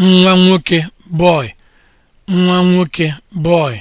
nwa nwoke boy nwa nwoke boy